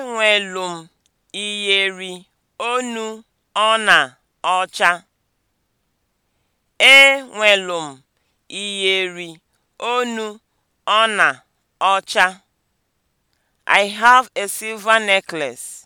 Enwelu nwelum iyeri onu ona ocha. I have a silver necklace.